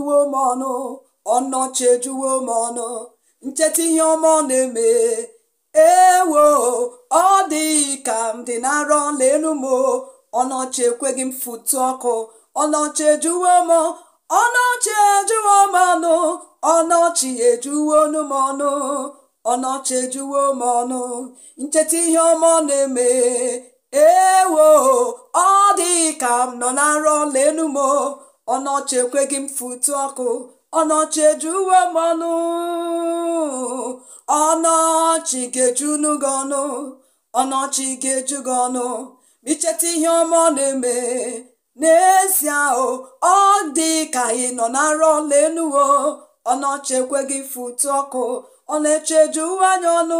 ejuwo m ọnụ ọnọchi ejuwo m ọnụ ncheta ihe ọma ọ na-eme ewo ọ dịghị ka m dị na arọ lelu m ọnọchi ekweghị m fụtụ ọkụ ọnọchi ejuwo m ọnọchi ejuwo m ọnụ ọnọchi ejuwo m ọnụ ọnọchi ejuwo m ọnụ ncheta ihe ọma ọ na-eme ewo ọ dịghị ka m nọ na arọ lelu m ọnọchi ekweghị m fụtụ ọkụ ọnọchi uwe m ọnụ ọnọchi ga-ejunu gị ọnụ ọnọchi ga-eju gị ọnụ ma icheta ihe ọma ọ na-eme n'ezie o ọ dị ka ị nọ na arọ lenuwo ọnọchi ekweghị fụtụ ọkụ ọ na uwe anya ọnụ